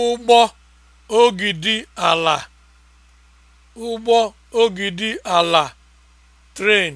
ụgbọ ogidi ala ụgbọ ogidi ala (tren)